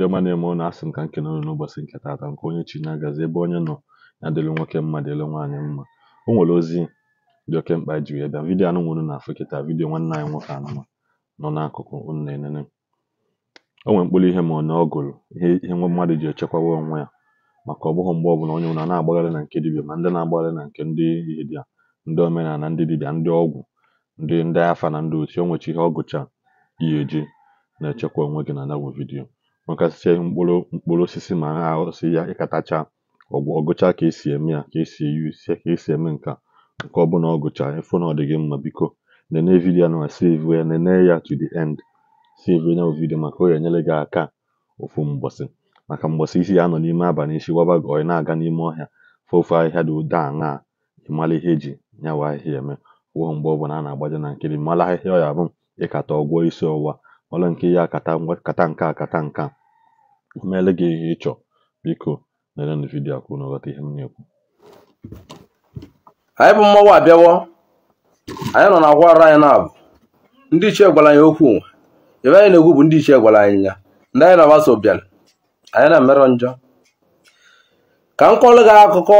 Ndị ọma na-eme unu asị m ka nke nọnụ n'ụbọchị nke taata nke onye chi na-agazi ebe onye nọ ya dịlụ nwoke mma dịlụ nwaanyị mma o nwere ozi dị oke mkpa ji wee bịa vidiyo anụ nwere na afọ kịta vidiyo nwanne anyị nwoke anụma nọ n'akụkụ unu na-enene o nwere mkpụrụ ihe ma ọ na gụrụ ihe ihe nwa mmadụ ji echekwawa onwe ya maka ọ bụghị mgbe ọbụla onye nwụrụ na-agbagharị na nke dibịa ma ndị na-agbagharị na nke ndị dibịa ndị omenala ndị dibịa ndị ọgwụ ndị ndị afa na ndị otu o nwechi ihe ọgụcha gụcha eji na-echekwa onwe gị na nabụ vidiyo ihe mkpụrụ mkpụrụ osisi ma na-ahụsi ya ịkatacha ọgụcha ka esi eme ya ka esi eyuzie ka esi eme nka nke ọbụla ọ gụchara ịfụ na ọ dị gị mma biko nene vidiyo na save ya nene ya to the end save ya vidiyo maka onye ga-enyere gị aka ofu mgbọsị maka mgbọsị isi ya nọ n'ime abalị isi gbaba gị ọyị na-aga n'ime ọhịa fofu ahịhịa dị ụda na ịmara ihe eji ya wa ahịhịa eme wụọ mgbe ọbụla a na-agbaje na nkiri mara ahịhịa ọ ya bụ ịkata ọgwọ isi ọwụwa ọla nke ya akata kata nke akata nka meele gị ihe ị chọọ biko lerenụ vidio akwụ na ọghọta ihe m na-ekwu anyị bụ mmọnwụ abịawo anyị nọ na akwara anyị na ndị ichie gwara anyị okwu ebe anyị na-ekwu bụ ndị ichie gwara anyị ya ndị anyị na-agbaso bịara anyị na emerụ njọ ka m kọọrọ gị akụkọ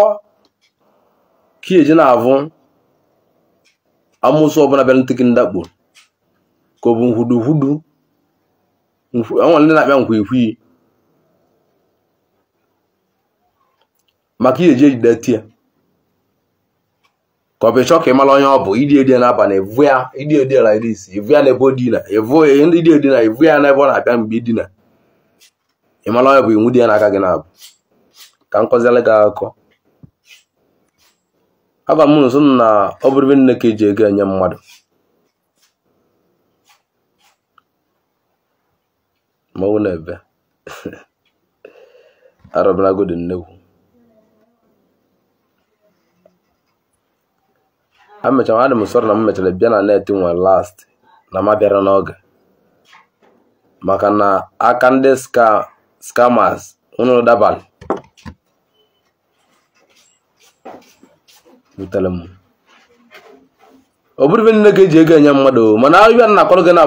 ka eji na-avụ amụsụ ọbụla bịara ntịkị ndakpo ka ọ bụ nhudughudu enwere ndị na-akpịa nkwa ikwiyi maka ihe eji ejideti ya ka ọ bụ ka ị mara onye ọ bụ idi edi n'abalị evu ya idi edi ala iri isi evu ya n'ebe o dina evu idi edina evu ya n'ebe ọ na-abịa mgbe idina ị mara onye bụ iwu dị ya n'aka gị na-abụ ka m kọziela gị akụkọ agwa m nso na ọ bụrụ ebe nne ka eji ego enye mmadụ mmanwụ na ebe arọbara godi nnekwu emechara adị m sọrọ na m mechara bịa na net nwe last na ma bịara n'oge maka na aka ndị scammers unu dabalị butere m ọ bụrụ ibe nne ga-eji ego enye mmadụ mana ibe na akọrọ gị na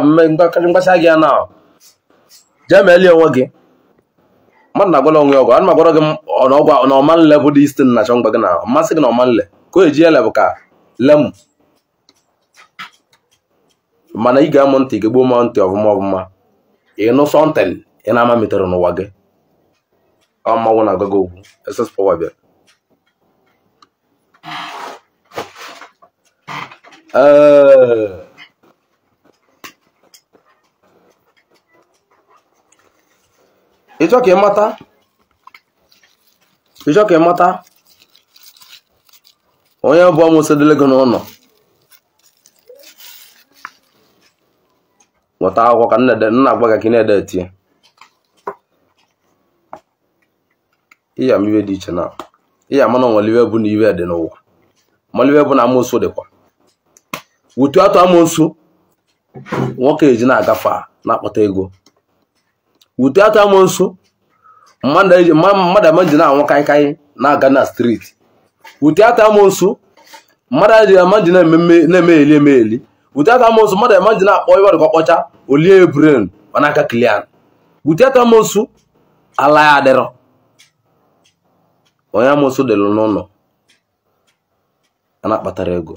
mgbasa gị ya na jee meelie onwe gị mmadụ na-agwara onwe ọgwụ ana m agwara gị na ọman lebụ dị istin na-achọ mgba gị na masị gị na ọmanle ka o eji ele bụ ka lemu mana ị ga-amụ ntị gị gbuo ma ntị ọvụma ị nụ sọntin ị na-ama metere n'ụwa gị ọ mmanwụ na-agwa gị okwu ss pọwa bịara ịchọ ka ị mata onye bụ ọmụsọ dịle gị n'ụlọ nweta akwụkwọ ka nna agwa gị ka ị na-ede etie ịya m iwe dị iche na ịya mana nwere bụ na iwe dị n'ụwa mana bụ na amụsụ dịkwa wutu atụ amụsụ nwoke eji na-agafe na-akpata ego wutu atụ amụsụ mmadụ ama na-anwụ kaịkaị na-aga na striti ụdị ata amụsụ mmadụ adịghị ama ji na-emegheli emegheli ụdị ata amụsụ mmadụ ama ji na-akpọ iwe dịka ọkpọcha olie bren mana aka kilian ụdị ata amụsụ ala ya adịrọ onye amụsụ dịlụ n'ụlọ a na-akpatara ego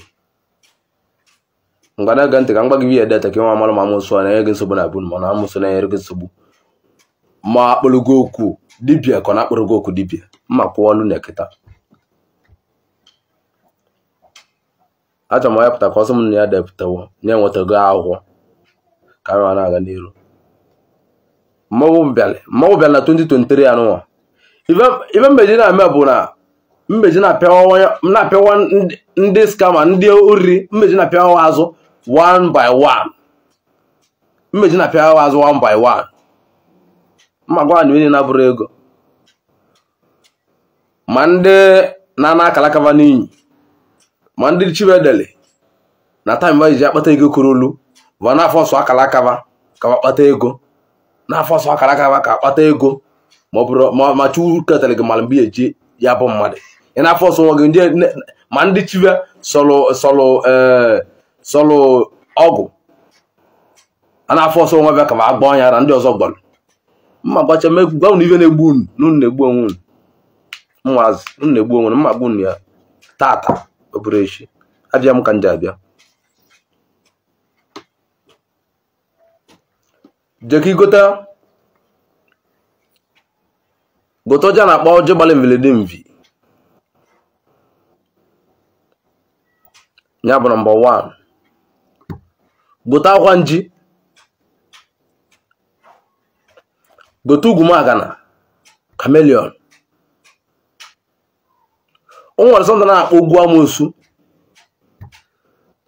ngwa na-ege ntị ka m gwa gị ihe deta ka nwa amara ma amụsụ a na-enye gị nsogbu na abụ mana amụsụ na-enyere gị nsogbu ma akpụrụgo okwu dibia ka ọ na-akpụrụgo okwu dibịa mma kwụọ ọlụ na kịta achọrọ m ọnyapụta ka ọsọ m na ya depụtawo nye enwetago akwụkwọ ka m na-aga n'iru mmanwụ bịara mmanwụ bịara na 2023 anụnwa ibe mbeji na-eme bụ na mbeji na-apịawa ndị skama ndị oriri mbeji na-apịawa azụ 1 by 1 mmeji na-apịawa azụ 1 by 1 mma gwa anyị na-abụrụ ego ma ndị na-ana akalakaba n'inyi ma ndị chibedeli na taim ba ji akpata ego kuru olu bụ n'afọ ọsọ akara akaba ka kpata ego n'afọ ọsọ akara akaba ka kpata ego ma ọ bụrụ ma chukwu ketara gị mara mgbe eji ya bụ mmadụ ị na afọ ọsọ nwa gị ma ndị chibe sọlụ eh, sọlụ ọgwụ a na-afọ ọsọ nwa bịa ka ma agba ọnya na ndị ọzọ gbara mma gbacha gbanwụ ihe na-egbu unu n'unu na-egbu onwe unu mmazị unu na-egbu onwe unu mma gbu unu ya tata ọ bụrụ echi abịa m ka m abịa jee ka ịgota gote ọjị a na-akpọ ọjị gbalị mvelede mvi ya bụ nọmba 1 gote akwa nji gote ugwu magana kamelion o nwere sọnta na-akpọ ugwu amosu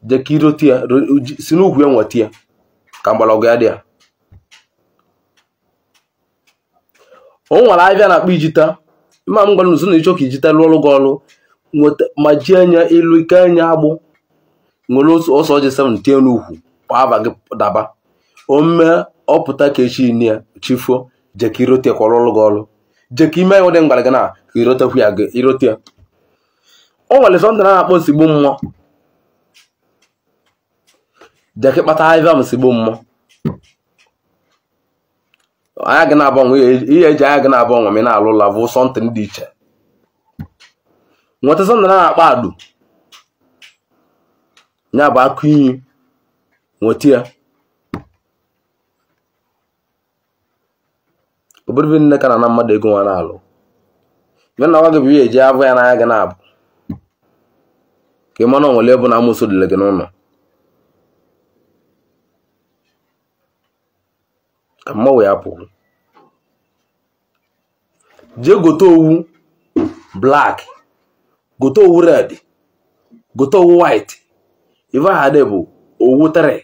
jekirote ya si n'ugwu ya nweta ya ka mgbọrọgwụ ya dị ya o nwere abịa na-akpọ ijita ma m gwara na ịchọ ka ijita lụọ ọrụ gị ọrụ ma ji anya ilu ike anya agbụ nwere ọsọ ọjị 7 tie n'ukwu aba gị daba ome ọpụta ka echi ne ya chifuo jeka irote kwọrọ ọrụ gị ọrụ jeka ime ya dị mgbara gị na irotekwu ya irote ya Ọ nwere sọnde na-akpọ osigbo mmụọ jeki kpata ivam sigbo mmụọ anya gị na-agbanwe ihe eji e anya gị na-agbanwe ma na-alụ ụlọ bụ sọntịn dị iche nweta sọnde na akpọ adụ ya bụ akụ iyi nweta ya obodo nne ka na na mmadụ ego nwa na-alụ ya na nwa gị bụ ihe eji abụ ya n'anya gị na-abụ ka ị na onwere ebe na amụsụ dịle gị n'ụlọ ka mmanwụ ya pụrụ jee gote owu black gote owu red gote owu white ife aha dị bụ owu tere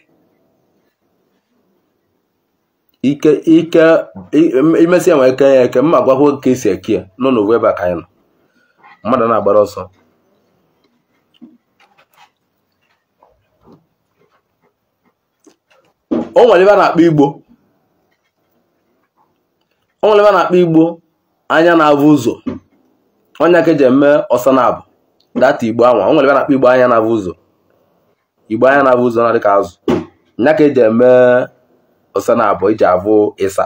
ike ike imesịa nwere ike ya eke mma gwakwa ka esi eke ya n'ụlọ ebe a ka anyị nọ mmadụ na-agbara ọsọ o nwere ebe a na-akpọ igbo o nwere ebe a na-akpọ igbo anya na-avụ ụzọ onye aka eji eme ọsa na-abụ data igbo anwa o nwere ebe a na-akpọ igbo anya na-avụ ụzọ igbo anya na-avụ ụzọ na-adị ka azụ onye aka eji eme ọsa na-abụ iji e avụ ịsa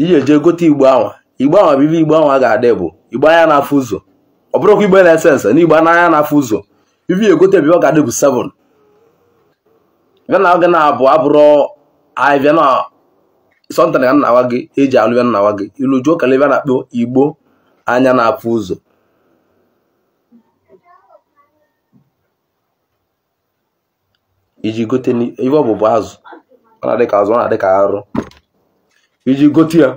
iji eje gote igbo anwa igbo anwa bụ ibe igbo anwa ga-adị bụ igbo anya na-afụ ụzọ ọ bụrụkwa igbo na-ese nse na igbo anya na-afụ ụzọ ibi egote ebe ọ ga-adị bụ 7 gana na abụ abụrụ ahịvịa na sọntan na nna gị eji alụ nna nnawa gị ilu ebe a na-akpọ igbo anya na apụ ụzọ iji gote ife ọbụbụ azụ ọ na ka azụ ọ na arụ iji gote ya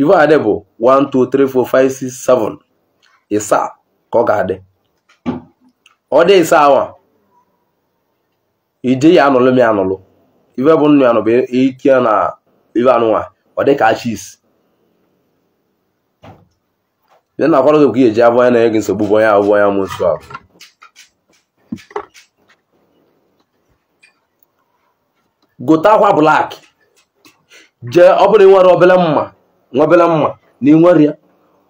ife adị bụ ịsaa ka ọ ga-adị ọ dị ịsaa awa ije ya anụlụ m ya anụlụ ife bụ nnụ ya bụ e, ike na ife anụnwa ọ dị ka chis e na akwara gị eji abụ na-enye gị nsogbu bụ onye abụ onye amụ nsọ ahụ gote akwa blak jee ọ bụrụ nwere obele mma nwebele mma na ịnwere ya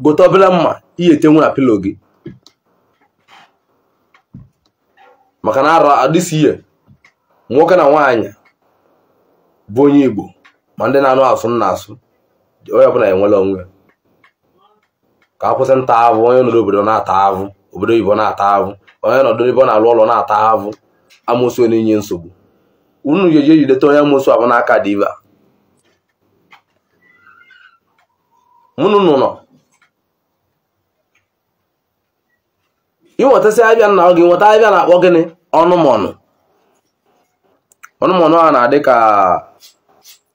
gote obele mma ihe etenwu na pilo gị maka na ara adịsi ihe nwoke na nwaanyị bụ onye Igbo ma ndị na-anụ asụ nna asụ onye ọbụla enwela onwe ka akwụsị kwụsị nta avụ onye nọdụ obodo na-ata avụ obodo oyibo na-ata avụ onye nọdụ ebe ọ na-alụ ụlọ na-ata avụ amụsụ na inye nsogbu unu ji eji ejideta onye amụsụ abụ n'aka diva mụnụ nọ ịnwetazi abịa nna gị nweta abịa na-akpọ gịnị ọnụ ọnụ. ọnụmọnụ a na-adị ka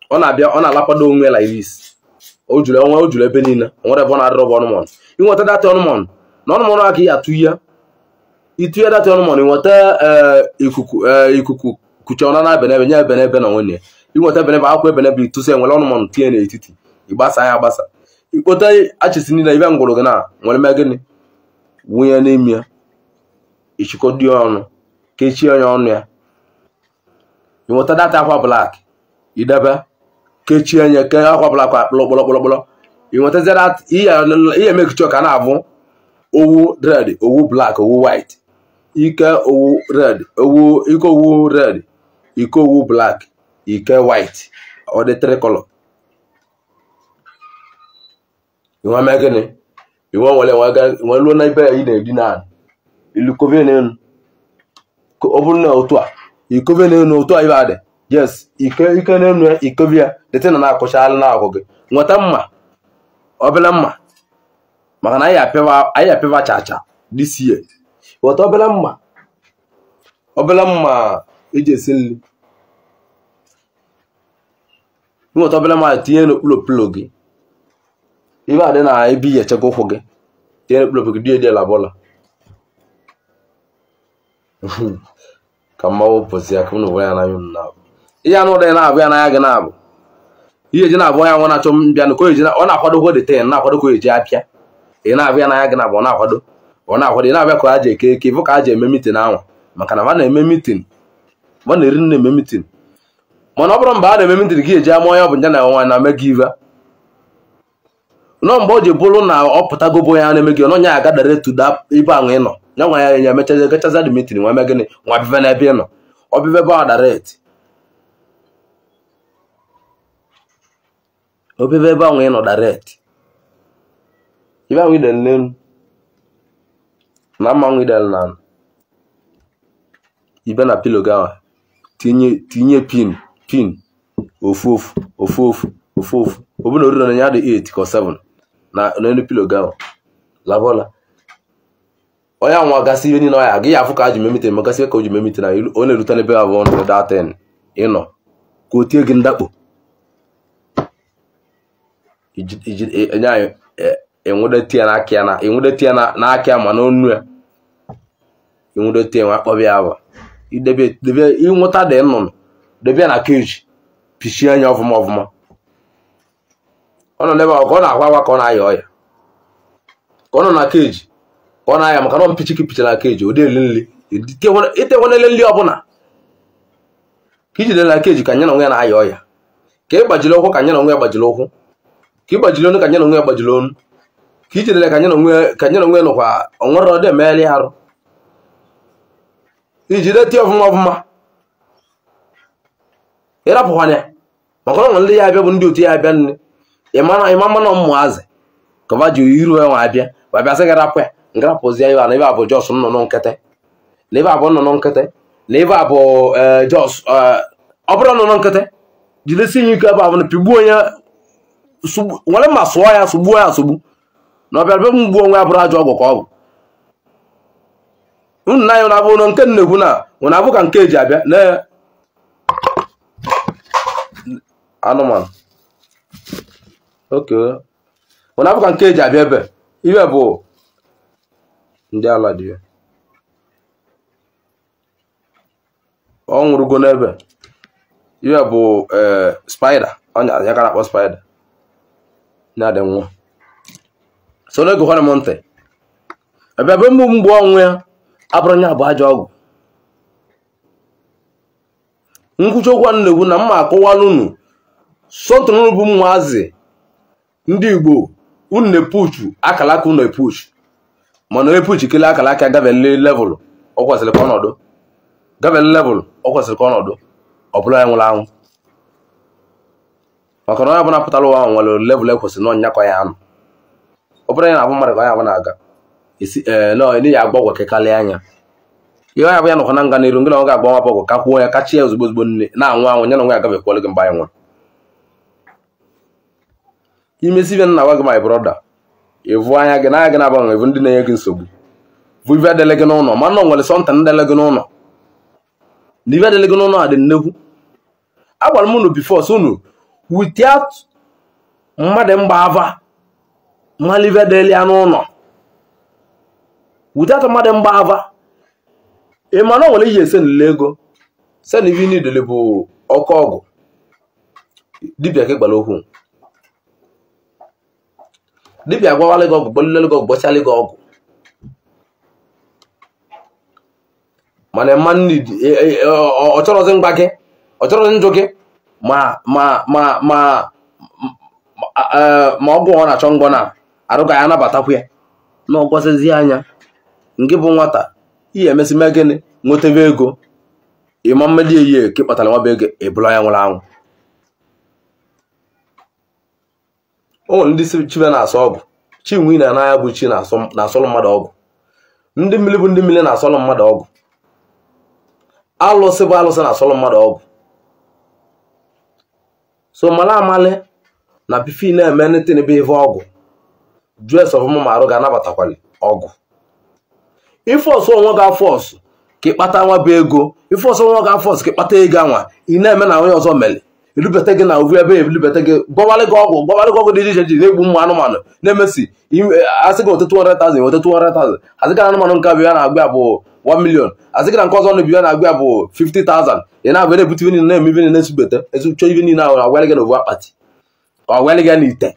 ọ na-abịa ọ na-alakwado onwe la iris o juru ebe niile nwere ebe ọ na-adịrọ bụ ọnụmọnụ inweta data ọnụmọnụ na ọnụmọnụ a ka ị atụ ihe itinye data ọnụmọnụ inweta eh, ikuku eh, ikuku kuche ọna na benebe nye ebenebe na nwunye inweta ebenebe akwụkwọ ebenebe itụsi enwere ọnụmọnụ tinye n'etiti ịgbasa ya agbasa ikpota achịsi niile ibe ngwụrụ gị na nwere mee gịnị wunye n'ime ya ichịkọdo dị ọnụ kechie onye ọnụ ya ịnweta data akwa blak idebe kechie nye ke akwa blak akpụlọ kpọlọkpọlọkpọlọ ihe emekichọ ka na-abụ owu red owu blak owu white ike owu red owu ike owu red ike owu blak ike white ọ dị tricolor inwe mee gịnị inwe nwere nwee luo na ibe ya ị na-edina ilukọbe n'elu ọ bụrụ na otu a ikove na-enu otu anyị adị yes ike ike na-enu ya ikovi ya dịtị na na-akụchalụ na ahụ gị nweta mma obele mma maka na anyị apịwa chacha this year nweta obele mma obele mma eji esi nri nweta obele mma tinye n'okpulokpulo gị ibe adị na ebe iyi echekwa ụkwụ gị tinye n'okpulokpulo gị dị edela bụla ka mma wụpụzi ya ka m na ụwa ya anaghị m na-abụ ihe anụ ụdọ ya na-abụ ya n'anya gị na-abụ ihe ji na-abụ ya nwa na-achọ mbịa n ọ na-akwado ko dete na-akwado ka eji apịa ị na-abụ ya n'anya gị na-abụ ọ na-akwado ọ na-akwado ị na-abịa ka a ji eke eke bụ ka a ji eme mitin anwa maka na ma na-eme mitin ma na-eri nna eme mitin mana ọ bụrụ mba a na-eme mitin gị eji ama onye ọ bụ nje na nwa na me gị iva nọ mgbe o ji bụrụ na ọ pụtagobo ya na-eme gị ọnọnya agadara da ibe ahụ ịnọ ya nwa ya ya mechaza gachaza dimitri nwa gịnị nwa bive n'ebe ịnọ nọ ọbive be ọdaret ebe ahụ ịnọ dara daret ibe ahụ idel n'elu na idel na ibe na pilo gawa tinye pin pin ofu ofu ofu ofu ofu ofu ya na n'elu pilo gị ahụ labọla onye anwa gasị ihe niile ọya gị ya afụ ka ji memite ma gasị ka o ji memite na onye erute n'ebe abụọ na ụda ten ịnọ ka o tie gị ndakpo enye anyị enwudetie n'aka ya na enwudetie n'aka ya ma n'onu ya enwudetie e nwa akpọbi ya bụ ịnwụta dị nnụnụ debe ya na keji pichie anya ọfụma ọfụma ọ nọ n'ebe ahụ ka ọ na-akwa agwa ka ọ na-aya ọya ka ọ nọ na keji ka ọ na-aya maka na mpichi ka picha na keji ụdị eli nri itekwanele nri ọbụla ka ijide na keji ka nye na onwe ya na-aya ọya ka ị gbajiri ụkwụ ka nye na onwe ya gbajiri ụkwụ ka ị gbajiri onu ka nye na onwe ya gbajiri onu ka ijidere ka nye na onwe ya nụkwa onwere ọdị emegharị arụ ijide tie ọfụma ọfụma ịrapụkwanya maka na ndị ya abịa bụ ndị otu ya abịa nri ịmama na azị. kọva ji iru nwa abịa ma bịa sị gị rapụ ya ngarapụzie ya na jos nnụnụ nkịtị na ebe a nnụnụ nkịtị na ebe e, jos e, ọ bụrụ nnụnụ nkịtị jidesi ike ebe a bụ na pigbuo onye nwere mma sụọ ya sụgbuo ya asụgbu na be onwe ya ọgwụ ka ọ bụ unu na anya nke na abụ ka nke eji abịa na anụmanụ okay na abụka nke eji abịa ebe ibe bụ ndị ala dị ya ọ nwụrụgo n'ebe iwe bụ e, spider ọnya ya ka na-akpọ spider na-adị nwa so n'oge hụrụ m ntị ebe ebe mbụ mgbe ọnwụ ya abụrụ nya bụ ajọ ọgwụ nkwuchi okwu na-ekwu na mma akọwala unu sotụrụ bụ ndị igbo unu na-epuchu akalaka unu epuchu mana epuchu kele akalaka gavele level ọ kwesịrị ka ọnọdụ gavele level ọ kwesịrị ka ọnọdụ ọ ya nwụrụ anwụ maka na onye ọbụla pụtara ụwa ahụ nwere level ekwesịrị na ọnyakọ ya anụ ọ bụrụ ya na-abụ mmadụ ka onye abụ na-aga esi ee ya agba ọgwụ anya ihe onye abụ ya nọkwa na nga n'iru ngị na ọ ga-agba nwa ọgwụ ka kwuo ya kachi ya ozugbo ozugbo nne na-anwụ anwụ ya na nwa ya agabekwa gị mgbe anyị nwụrụ imesi ibe nna gwa gị my brọda ịvụ anya gị na gị na-agbanwe bụ ndị na-enye gị nsogbu bụ ibe adịle gị n'ụlọ ma nọ nwere sọnta ndele gị n'ụlọ na ibe adịle gị n'ụlọ adị dị nnekwu agwara m unu bifo so unu without mmadụ mgba ava mmadụ ibe adịle ya n'ụlọ without mmadụ mgba ava ị ma na nwere ihe esenile ego sen ibe idele bụ ọkụ ọgwụ dibịa gị gbara okwu dibịa agwawala gị ọgwụ gbolilelu gị ọgwụ gbochala gị ọgwụ mana e, e, e, ọ chọrọzi mgba gị ọ njụ gị ma ma ma ma ma ọgwụ ọ na-achọ ngwọ na ya anabatakwa ya na ọgwọzizi anya ngị bụ nwata ihe emesime gịnị nwetebe ego ịma mmeli eyi ka ị kpatara nwaba ego ebula ya nwụrụ anwụ ụmụ ndị si chibe na-asọ ọgụ chinwe na anaghị bụ chi na-asọlụ mmadụ ọgụ ndị mmiri bụ ndị mmiri na-asọlụ mmadụ ọgụ alụsị bụ alụsị na-asọlụ mmadụ ọgụ so mala amali na pifi na-eme netin bụ ọgụ jus ọfụma ma arụ ga-anabatakwali ọgụ ife onwe ga-afọ ka ịkpata nwa bụ ego ife onwe ga-afọ ọsụ ka ịkpata ego anwa ị na-eme na onye ọzọ mere erubata gị na ovu ebe ebulibata gị gbawarị gị ọgwụ gị dị iche iche na-egbu ụmụ anụmanụ na-emesi e, asị gị otetu 100,000 otetu 100,000 asị gị na anụmanụ nke abụ ya na-agba bụ 1 million asị gị na nke ọzọ na ya na-agba bụ 50,000 ị na-abịa na-ebute ive niile na-eme ive niile na-esubete esuchọ ive niile ahụ agwalị gị na akpati ka agwalị gị na ite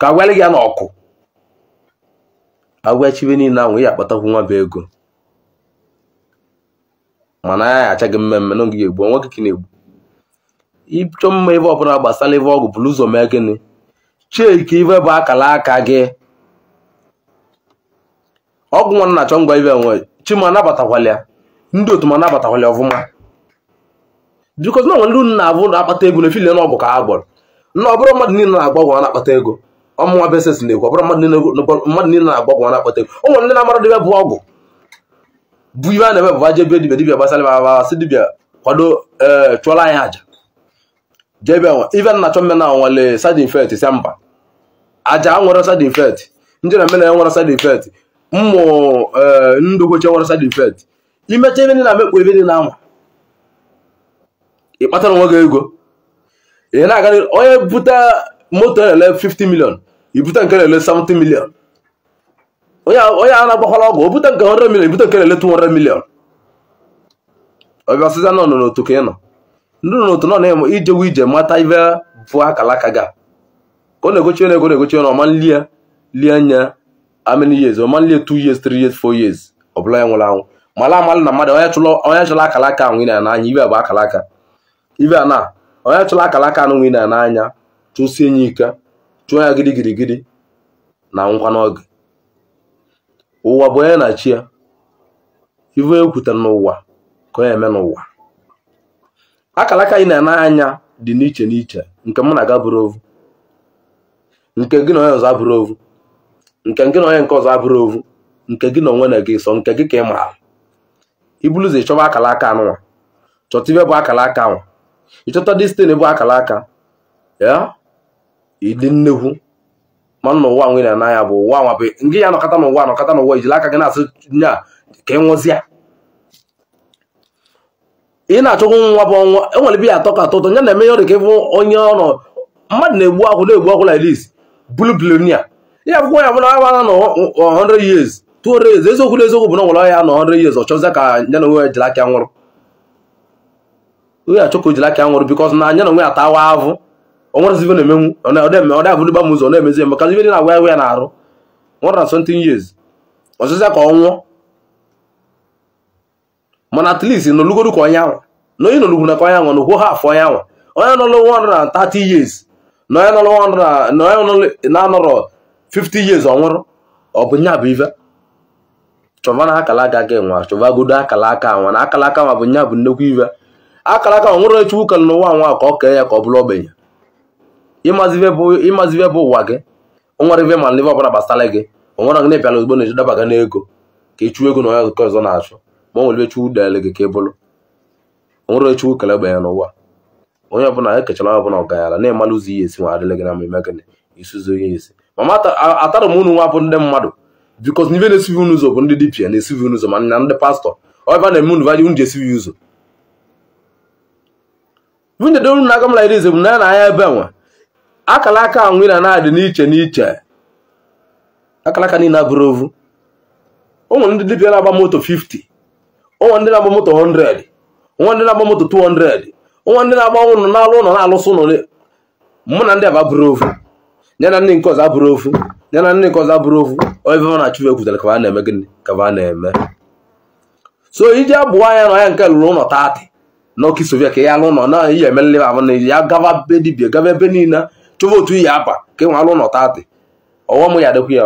ka agwalị gị ya na ọkụ agwachive niile ahụ ya akpatakwu nwa bụ ego mana ya ya achaghị mmemme na ogige egbu ka na-egbu ịchọ mma ebe ọbụla gbasara ebe ọgwụ bụrụ ụzọ mee gịnị cheki ibe bụ akara aka gị ọgwụ nwa na-achọ ngwa ibe nwe chima anabatakwala ya ndị otu ma anabatakwala ọfụma bikos na nwere unu na-abụ na-akpata ego na efili na ọgwụ ka ha gbọrọ na ọbụrụ mmadụ niile na-agba ọgwụ na-akpata ego ọmụnwa beses na-ekwu ọbụrụ mmadụ niile na-agba ọgwụ na-akpata ego o ndị na-amara debe bụ ọgwụ bụ ibe a na-eme bụ aje dibia gbasara ebe si dibia kwado eh, chụọla anyị àjà jebe even na chọmena nwale side effect mba aja nwere side ndị na mena nwere side effect mmụ ndugoche nwere side eh, imecha ebe na mekpu ebe dị na anwa ị kpatara onwe gị ego ị na-aga onye bute moto na 50 ibute nke na 70 million onye a na-agbakwala ọgwụ o bute nke 100 ibute nke na 200 million ọbịa nọ n'otu ka ị nọ ndị nọ n'otu nọ na-eme ijewu ije mata ibe bụ akalaka ga ka ọ na-egochi ego na-egochi na ọma nlie lie anya amini years ọma nlie two years three years fo years ọ bụla ya nwụrụ anwụ mala amalụ na mmadụ onye chụla akalaka anwụ na n'anya ibe bụ akalaka ibe a na onye chụla akalaka anụ nwụ na n'anya chụsie nye ike chụọ ya gidi gidi gidi na ngwa n'oge ụwa bụ onye na-achị ya ibe ekwutere n'ụwa ka onye eme n'ụwa akala aka anyị na-ana anya dị n'iche n'iche nke mụ na aga bụrụ ovu nke gị na onye ọzọ abụrụ ovu nke gị na onye nke ọzọ abụrụ ovu nke gị na onwe na gị sọ nke gị ka ị maara ibuluzi chọba akala aka anụnwa chọta ibe bụ akala aka nwa ịchọta destin bụ akala aka ya ịdị nnekwu mana n'ụwa ụwa nwe na ya bụ ụwa nwa bụ ngị ya nọkọta n'ụwa nọkọta n'ụwa ijila aka gị na-asị nya ka ị e nwụzịa ị na-achọgwụ nwa bụ ọnwa enwere bi atọ ka atọ ụtọ ya na-eme ya ọrịa ka ịbụ onye ọnọ mmadụ na-egbu akwụ na-egbu akwụ like this blue ya akwụkwọ ya na agbana na 100 years 200 years eziokwu na eziokwu bụ na nwere ya na 100 years ọ chọzie ka ya na onwe jiri aka nwụrụ onye achọ ka o jiri aka nwụrụ because na anya na onwe ya tawa avụ na-emenwu ọ gba m ụzọ na-emezi eme ka ibe dị na agwa ya na arụ nwere na 17 years ka ọ nwụọ mana at least nọlụgodu ka onye anwa na onye nọlụgwu na ka onye anwa na haf onye anwa onye nọlụ 130 years na onye nọlụ na-anọrọ 50 years ọnwụrụ ọ bụ nya bụ ife chọba na akala aka gị nwa chọbagodo akala aka nwa na akala aka nwa bụ nya bụ nnekwu ife akala aka nwa nwere chukwu kere n'ụwa nwa ka ọ kee ya ka ọ bụrụ ogbenye ịmazi bụ ụwa gị nwere ibe ma ndị ọbụla gbasara gị onwere gị na-ebịala ozugbo na-ejedaba gị n'ego ka ịchụ ego na onye ọzọ na-achụ ma ọ nwere chukwu dịarị gị ka ị nwere onwere chukwu kelebe ya n'ụwa onye ọbụla ekechara ọbụla ọganyara na-emalụ ụzọ ihe esi nwa gị na mmemme gịnị isuzo ihe esi mama atara m unu nwa bụ ndị mmadụ bikos na unu ụzọ bụ ndị dibia na-esivi unu ụzọ ma na ndị pastọ ọba na-eme unu vaji unu ụzọ na-aga m lairi bụ na na anya ebe nwa akara aka anwụ na na-adị n'iche o nwere ndị dibia na-agba moto nwa ndị na-agba moto 100 nwa ndị na-agba moto 200 nwa ndị na-agba ụlọ n'alụ ụlọ na-alụsị ụlọ mụ na ndị aba bụrụ ofu ya na ndị nke ọzọ abụrụ ofu ya na ndị nke ọzọ abụrụ ofu ebe na-achụ ekwutara ka a na-eme gịnị ka na-eme so iji abụọ anya na ya nke lụrụ ụlọ taatị n'ọkụ soviet ka ya alụ ụlọ na ihe emelele ahụ na ya gaba be dibia gaba ebe niile chọba otu iyi aba ka enwe alụ ụlọ taatị m ya adịkwa ya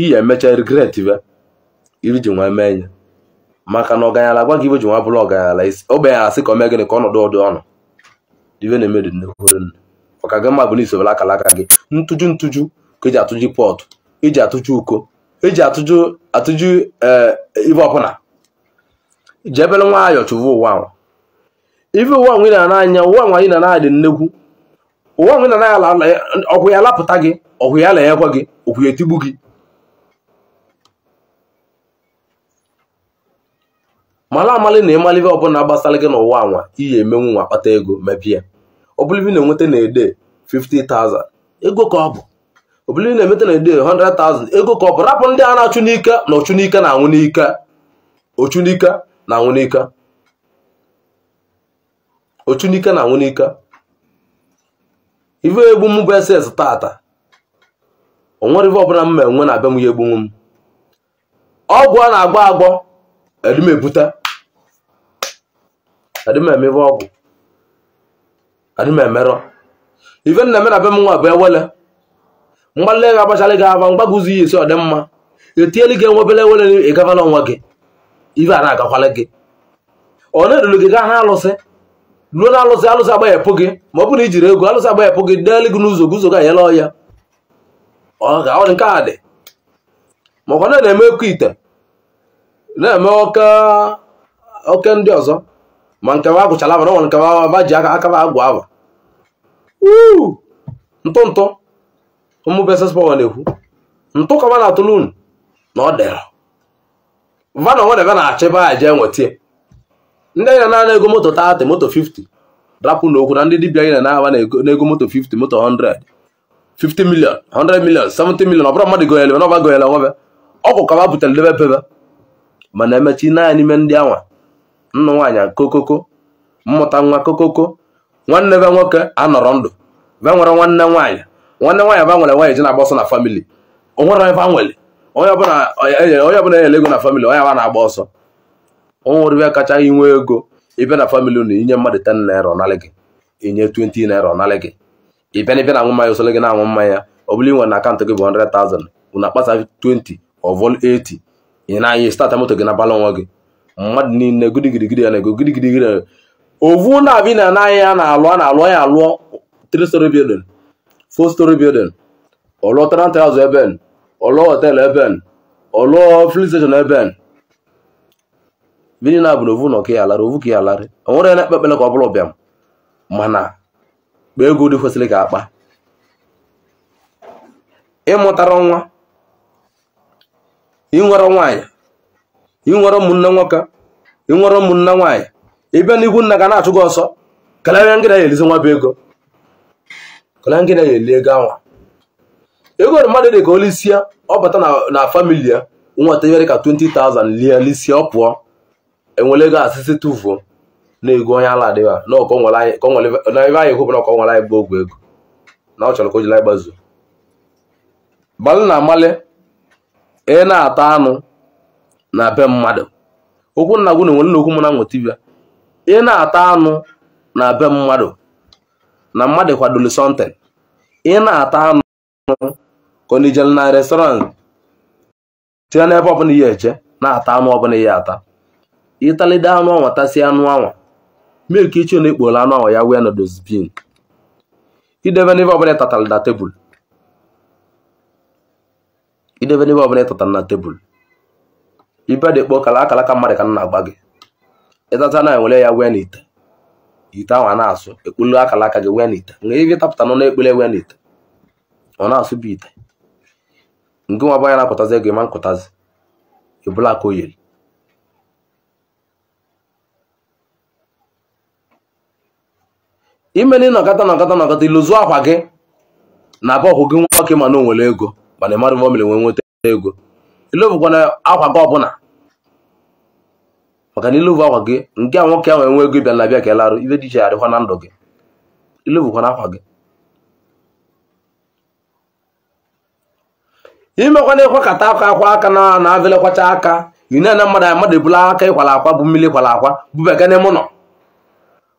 ihe emecha regret be iri ji nwee mee ya maka na ọganyala gwa gị ibe ji nwa bụrụ ọganyala isi ogbenye asị ka o mee gịnị ka ọnọdụ ọdụ ọnụ dive na-emedu nnekwurenụ maka gị mma bụ na isobere akalaka gị ntụju ntụju ka eji atụju pọtụ eji atụju uko eji atụju atụju eh, ibe ọbụla ji ebere nwayọọ chụva ụwa ahụ ife ụwa nwe na anya ụwa nwa anyị na na-adị nnekwu ụwa nwe na na ala ọkwụ ya lapụta gị ọkwụ ya la gị ọkwụ ya etigbu gị mala amali na ịmalive ọbụla gbasara gị n'ụwa anwa iyi emenwu nwa kpata ego mebie obulivi na-enweta na-ede 50,000 ego ka ọ bụ obulivi na-enweta na-ede 100,000 ego ka ọ bụ rapụ ndị a na-achụ n'ike na ọchụ n'ike na anwụ n'ike ọchụ n'ike na anwụ n'ike ọchụ n'ike na anwụ n'ike ive egbu m bụ ss tata onwere ive ọbụla m ma enwe na abịa m ya egbunwu m ọgwụ a na agwọ agbọ edumebute adịmemebe ọgwụ adịmemerọ ife nna mena be m nwa bụ ewele mgbalị ga agbachala gị aba mgbagụzi ya esi ọ dị mma etieli gị enwebele ewele ịgaba n'ọnwa gị ife a na-agakwala ọ na-eruru gị gaa na-alụsị ruo na alụsị alụsị agbaghepụ gị ma ọ bụrụ ijiri ego alụsị agbaghepụ gị deeli gị n'ụzọ gị ụzọ gị anyela ọya ọ ga ọ dị nke a dị na na-eme oke ite na-eme oke ndị ọzọ ma nke wa agụchala aba na nke wa ji aka akaba agwụ aba ntụ ntụ ụmụbesespawa na-ekwu ntụ kama na atụlun na ọ dịrọ vana nwa ebe na-achọ ebe a jee nwetie ndị anyị na-ana ego moto 30 moto 50 rapụ n'okwu na ndị dibịa anyị na-aba n'ego moto 50 moto 100 50 million 100 million 70 million ọ bụrụ mmadụ goyele na ọba goyele nwebe ọgwụ ka ba butere debe pebe mana emechi naanị ime ndị anwa nnụ nwaanyị kokoko mmụta nwa kokoko nwanne be nwoke anọrọ ndụ be nwere nwanne nwaanyị nwanne nwaanyị ba nwere nwaanyị ji na-agba ọsọ na famili onwere ebe nwere onye ọbụla enyere ego na famili onye aba na-agba ọsọ onwere ebe kacha inwe ego ibe na famili unu inye mmadụ 10 naira ọnalị gị inye 20 naira ọnalị gị ịbịa na ịbịa na-aṅụ mmanya gị na-aṅụ mmanya ọ bụla ị na akaụntụ gị bụ 100,000 unu akpasa 20 ọ 80 ị na-anya stata moto gị na bala onwe gị mmadụ niile gidigidigidi ya na-ego gidigidi ya ovu na abi na anaghị ya na-alụ a na-alụ ya alụọ three story building four story building ọlụọ tenant house ebe ọlụọ hotel ebe ọlụọ filling station ebe vini na bụ na ovu nọ ka ya alarị ovu ka ya alarị o nwere na ekpekpele ka ọ bụla bịam mana kpa ego dị kwesịrị ka akpa ịmụtara nwa ịnwere nwaanyị ịnwere ụmụnne nwoke ịnwere ụmụnne nwaanyị ịbịa n'ihu nna ga na-achụ gị ọsọ kalịa ngịda ya elizi nwa bụ ego kalịa ngịda ya eli ego anwa ego mmadụ dị ka olisie ọ bata na famili ya nwata nyere ka 20,000 lie lisie ọ pụọ enwere ego asịsị tụfuo na ego onye ala adịghị na ọkọ nwere ebe anyị hụbụ na ọkọ nwere anyị bụ ogwe ego na ọ chọrọ ka o jiri anyị gbazuo gbalị na amalị ị na-ata anụ na be mmadụ okwu nna gwu na-enwe okwu mụ na nweta dibịa ị na-ata anụ na be mmadụ na mmadụ kwadolu sọnten ị na-ata anụ konijel na restọrantị tinye n'ebe ọbụla ya eche, na-ata anụ ọbụla ya ata ịtalide anụ ọnwa tasịa anụ anwa milk iche na-ekporo anụ anwa ya wee na dozbin idebe n'ebe ọbụla ịtatara na tebụl idebe n'ebe ọbụla ịtatara na tebụl ibe dị kpọ kala akala ka mmadụ ka na-agba gị ịtata na ewere ya wee n'ite ite ahụ a na-asụ ekpulu akala aka gị wee n'ite mgbe ihe tapụta nọ na-ekpule wee n'ite ọ na-asụ bụ ite nke nwa banya na-akụtazi ego ịma nkụtazi ebula aka o ime na ịnọkọta nọkọta nọkọta iluzu akwa gị na abụ ọhụ gị nwoke ma na nwere ego mana ịmarụbọ mere nwee nweta ego ilovukwana akwa gị ọbụla maka na ilovu akwa gị nke a nwoke ahụ enwe ego bịa na bịa ka elarụ ibe dị iche arịkwa na ndụ gị ilovukwana akwa gị imekwana ịkwakọta akwa akwa aka na na-abịalekwacha aka inena mmadụ a mmadụ ebula aka ịkwala akwa bụ mmiri kwala akwa bubega n'ime ụlọ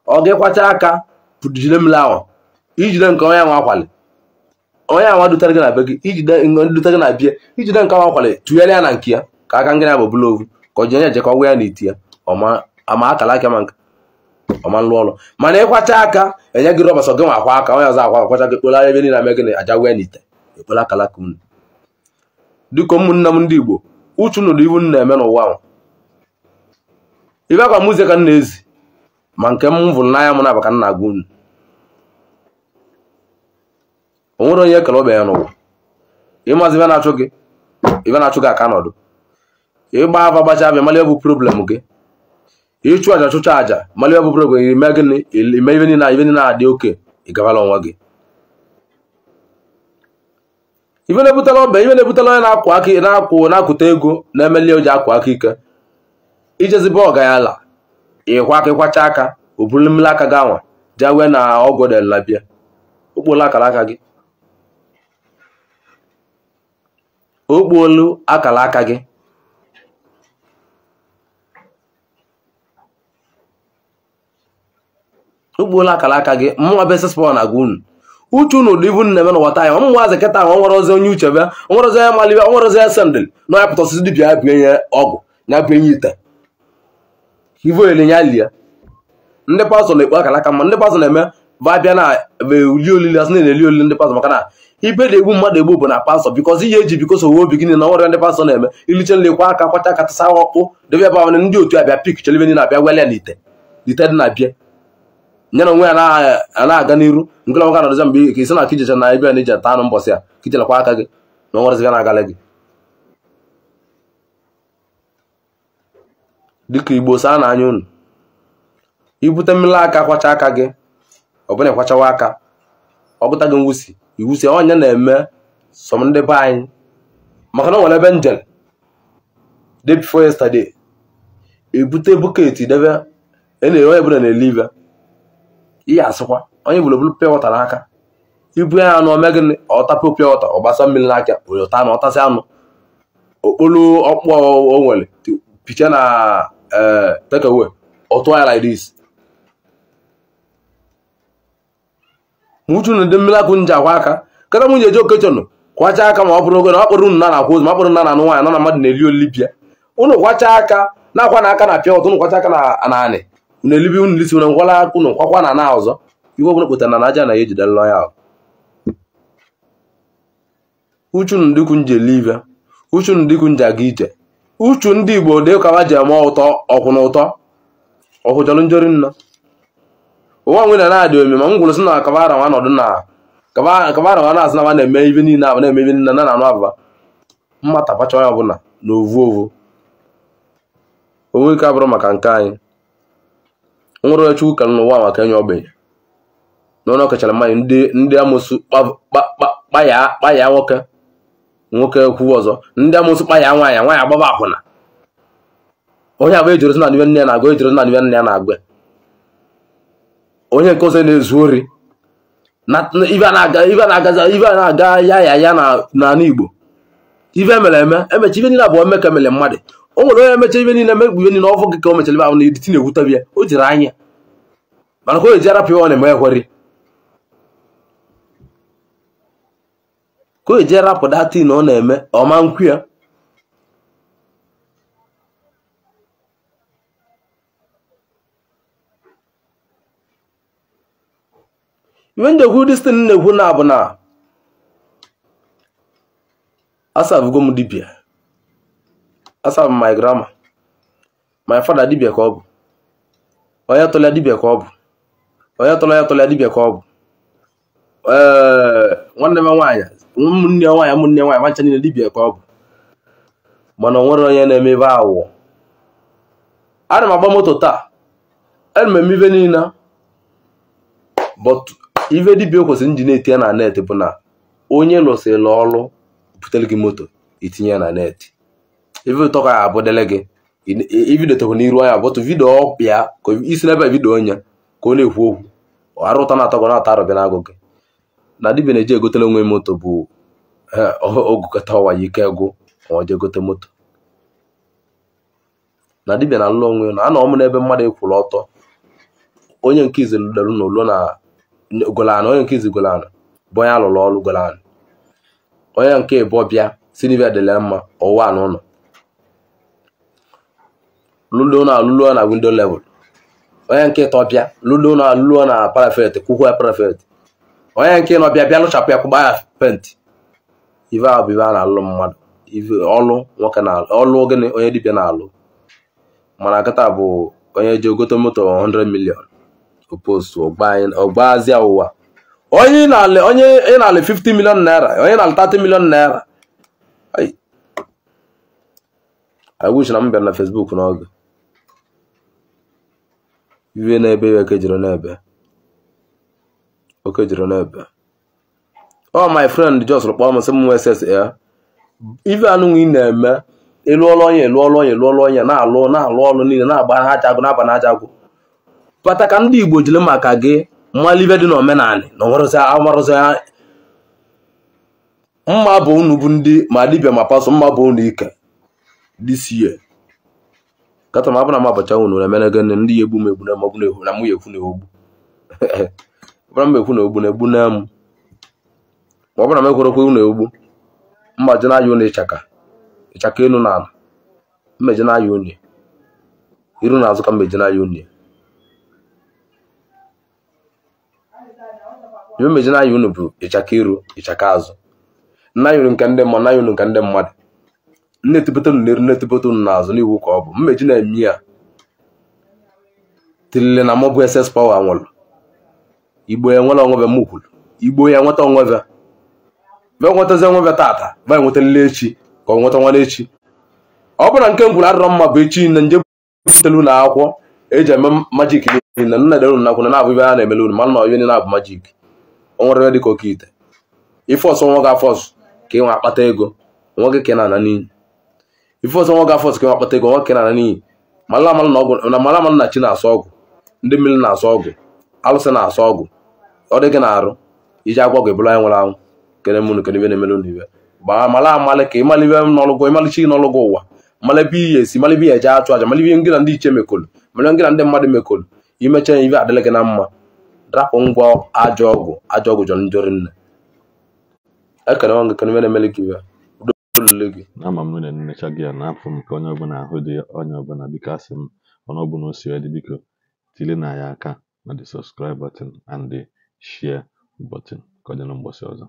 ọ gị kwacha aka jide mmiri ahụ ijide nke onye nwa akwali onye anwa dutere gị na be gị iji dutere na bie ijide nke anwa kwale tụnyere ya na nke ya ka aka ngịnị bụ bụla ovu ka ji onye ejekọ gwa ya na iti ya ama akala aka ma nka ọma nlụ ọlụ mana ịkwacha aka enye gị rọbas gị nwa akwa aka onye ọzọ akwa akwacha gị kpolagha ebe niile ame gịnị aja gwa ya na ite ekpola akalaka unu dịka ụmụnne m ndị igbo uchu nụrụ iwu m na-eme n'ụwa ahụ ibe akwa mụzie ka nna na-ezi ma nke m vụrụ n'anya m na-aba ka agwa unu onwere onye kere ogbe ya n'ụwa ịmazi ibe na-achụ gị ibe na-achụ gị aka n'ọdụ ịgba afa gbacha abịa mara bụ problem gị ịchụ aja chụcha aja mara bụ problem ime gịnị ime ibe niile ibe niile adị oke ịgabala onwe gị ibe na-ebutela ọba ibe na-ebutela onye na-akwụ aka na-akwụ na-akụta ego na-emeli oji akwụ aka ike ijezibe ọga ya ala ịkwa aka ịkwacha aka o buru mmiri aka gị anwa jee wee na ọgwụ delabịa okpola akara aka gị o akala aka gị o kpuola akala aka gị mụnwa besespọn agwa unu uche unu ụdị ibu nne m na wata ya ọmụnwa azị kịta ahụ nwere ozi onye uche bịa nwere ozi onye malibe nwere ozi sendil na onye pụta osisi dibia ya bie nye ọgwụ ya bie nye ite ivo nya lie ndị pastọ na-ekpu akala aka mma ndị pastọ na-eme ba bịa na eli olili na-eli olili ndị pastọ maka na ibe na-egbu mmadụ egbu bụ na pastọ bikọz ihe eji bikọs owe obi gịnị na ọrịa ndị pastọ na-eme iliche nlekwa aka kwacha katasa ọkpụ debe ebe ahụ ndị otu abịa pik chere ndị na-abịa wele ite ite dị na-abịa nye na onwe ya na-aga n'iru nke na nwoke na-adọza mgbe ka isi na na ebe a na-eji ata anụ mbọsị a kichelekwa aka gị na ọnwaraziga na-agala gị dịka igbo saa na anya unu ibute mmiri aka kwacha aka gị ọ bụla aka ọ bụta gị mwusi iwu si onye na-eme som ndị be anyị maka na o nwere ebe njem day before ebute e bọket debe e na-ere onye bụla na-ele ibe ihe asịkwa onye bụla bụrụ pịa n'aka ibu ya anụ ome gịnị ọtapụ pịa wọta ọgbasa mmiri n'aka onye ọta ọtasị anụ okporo ọkpụ o nwere picha na ee eh, tekewe ọtụ ya like ma uchu na ndị mmiri akwụ nji akwa aka kata nwunye ji okechọnụ kwacha aka ma ọ bụrụ oge na ọ kpọrọ na na-akwa ma na nwaanyị nọ na mmadụ na-eli olibia ụnụ kwacha aka na-akwa na aka na pịa ụtụ kwacha aka na anị unu elibi ụnụ lisi unu ngwala kwakwa na na ọzọ iwe ọbụla kpụtara na aja na ya ejidela ya ahụ uchu ndị ikwu nji eli uchu ndị ikwu nji aga ije uchu ndị igbo dị ụkawa ji eme ụtọ ọkwụ na ụtọ njori nna ụwa nwere na-adị ome ma m gwụrụ sị na kabara nwa nọdụ na kabara nwa na-asị na nwa na-eme ibe niile abụ na-eme ibe niile na na-anụ abụba mmata bacha onye ọbụla na ovu ovu onwe ike abụrụ maka nke anyị nwere oche ụka n'ụwa maka enye na n'ọnụ ọkachara mmanya ndị ndị amụsụ kpaya nwoke nwoke kwuo ọzọ ndị amụsụ kpaya nwaanyị nwaanyị agbaba akwụna onye agba ejoro na n'ibe nne ya na-agụ ejoro na n'ibe nne ya na-agụ onye nke ọzọ na-ezu ori ife a na-aga ya ya ya n'ala Igbo ife emere eme emecha ife niile abụọ mmekọ emere mmadụ o nwere onye emecha ife niile emegbu ife niile ọfọ gị ka o mechara ife ahụ na editi na-ewutebi ya o jiri anya mana ka o ji arapụ ya ọ na-eme ekweri ka o ji arapụ datin ọ na-eme ọma nkwu ya when they hụ dis thing na-ekwu na bụ na asabugo m dibia asabụ my grandma my father dibia ka ọ bụ onye tụlịa dibia ka ọ bụ onye tụlọ ya tụlịa dibia ka ọ bụ ee eh, nwanne m nwaanyị ụmụnne nwaanyị ụmụnne nwaanyị nwancha niile dibia ka ọ bụ mana onwere nwere onye na-eme ebe awụ ana m agba moto taa ana m eme niile but ive dibia kwesịrị nji na-eti ya na net bụ na onye lụsịrị ọrụ butere gị moto itinye ya na net ife ụtọ ka ya abụdele gị ibidotekwa n'iru anya bụtụ vidio ọpịa ka isi n'ebe vidio onye ka ọ na-ekwu okwu arụta na atagwa na-ata arụbịa n'agụ gị na dibia na-eji egotele onwe moto bụ ogụkọta ọwa ya ike gwụ ọ gote moto na dibia na alụ onwe na anọ m n'ebe mmadụ ekwuru ọtọ onye nke izelu lụrụ na na golano onye nke izi golano bụ onye alụrụ ọrụ golano onye nke bụ bịa silvia dịla mma ọwa na ụlọ lụlo na alụlo na windo level onye nke tọ bịa lụlo na alụlo na parafet kwụkwọ ya parafet onye nke nọ bịa bịa lụchapụ ya kwụgba ya pent. ive ahụ bụ ive a na-alụ mmadụ ọlụ nwoke na ọlụ gịnị onye dibịa na-alụ mana nkịta bụ onye ji ogote moto 100 million post ọgbazia ụwa onye ị na-alị 50 million naira onye na-alị 30 million naira I na m bịara na Facebook n'oge na-ebe iwe n'ebe okejiri e n'ebe ọ my friend just kpọọ m sị ss ya ife anụnwa ị na-eme ịlụọla onye lụọla onye lụọla onye na-alụ na-alụ ọlụ niile na-agba na na-aba na kpata ka ndị Igbo jiri maka gị mmalibe dị n'omenala na amarụzi mma bụ unu bụ ndị ma dibịa ma pasọ mma bụ unu ike dịsie kata ma bụ na m abacha unu na emene gịnị ndị ya egbu m egbu na m egbu na m ya ekwu na egbu ọbụna m ekwu na ogbu na egbu na m ma ọ bụna m ekwerekwe unu egbu mmaji na aya unu ịchaka ịchaka elu na ala mmeji na aya unu iru na azụ ka mmeji na aya unu iwe mejina unu bụ ịchaka iru ịchaka azụ nna nke ndị mmadụ nna ya unu nke ndị na azụ n'eru n'azụ n'iwu ka ọ bụ mmeji na-eme ya tilile na mọbụ ss pawa nwụrụ igbo ya nwere onwebe m igbo ya nweta onwebe be nwetazi onwebe tata be echi ka ọ nweta nwana echi ọ bụrụ nke m mma bụ echi nje butele ụlọ akwụkwọ eji eme majik niile nna dere unu nakwụna na-abụ ibe a na-emele unu mana na na-abụ onwerere dịka oke ite ife ọsọ nwa gị afọsụ ka ịnwa akpata ego nwa gị ka na-ana n'iyi ife nwa gị ka akpata ego nwa ka na-ana n'iyi mara na chi na-asọ ndị mmiri na-asọ ọgwụ alụsị na-asọ ọgwụ ọ dị gị na-arụ iji agwọ gị anyị nwere anwụ kere mụnụ kere ibe na-emere ụnụ gbaa mara amalị ka ịmalụ ibe n'ọlụgwọ ịmalụ chi n'ọlụgwọ ụwa mara ebe ihe esi mara ebe ihe eje achụ aja mara ihe ngị na ndị iche mekolu na ndị mmadụ mekolu imecha ibe adịlị gị na mma rapụ ngwa ajọ ọgwụ ajọ ọgwụ jọrọ njọ rinne ekere ọnụ ekere mere emere gị olule gị ama m nwere nnecha gị ya na apụ m ka onye ọbụla ahụ dị onye ọbụla biko asị m ọnụ ọbụla o si dị biko tili na ya aka na the subscribe button and the share button ka ọ dị na mgbọsị ọzọ